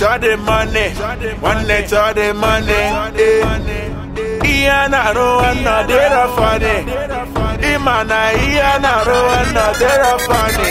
chọdị mọni nwanne chọdị mọni ihe a na-arụ nwanne ọ dịrọ fọni ịma na ihe a na-arụ nwanne ọ dịrọ fọni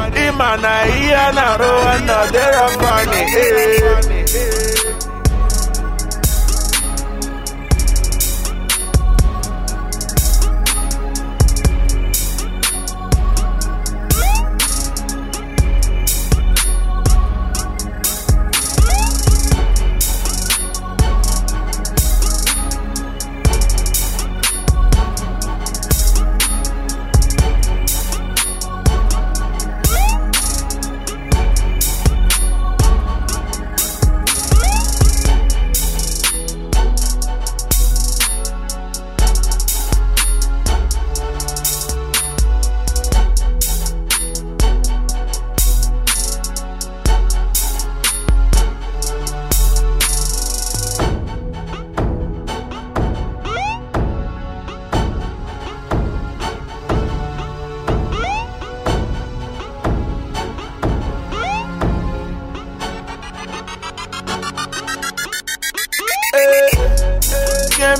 ma na ihe a na-arụ nọ anyị ee. Eh.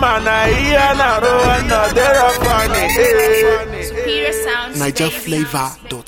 ma na ihe na-arụ eh. Superior Sound Niger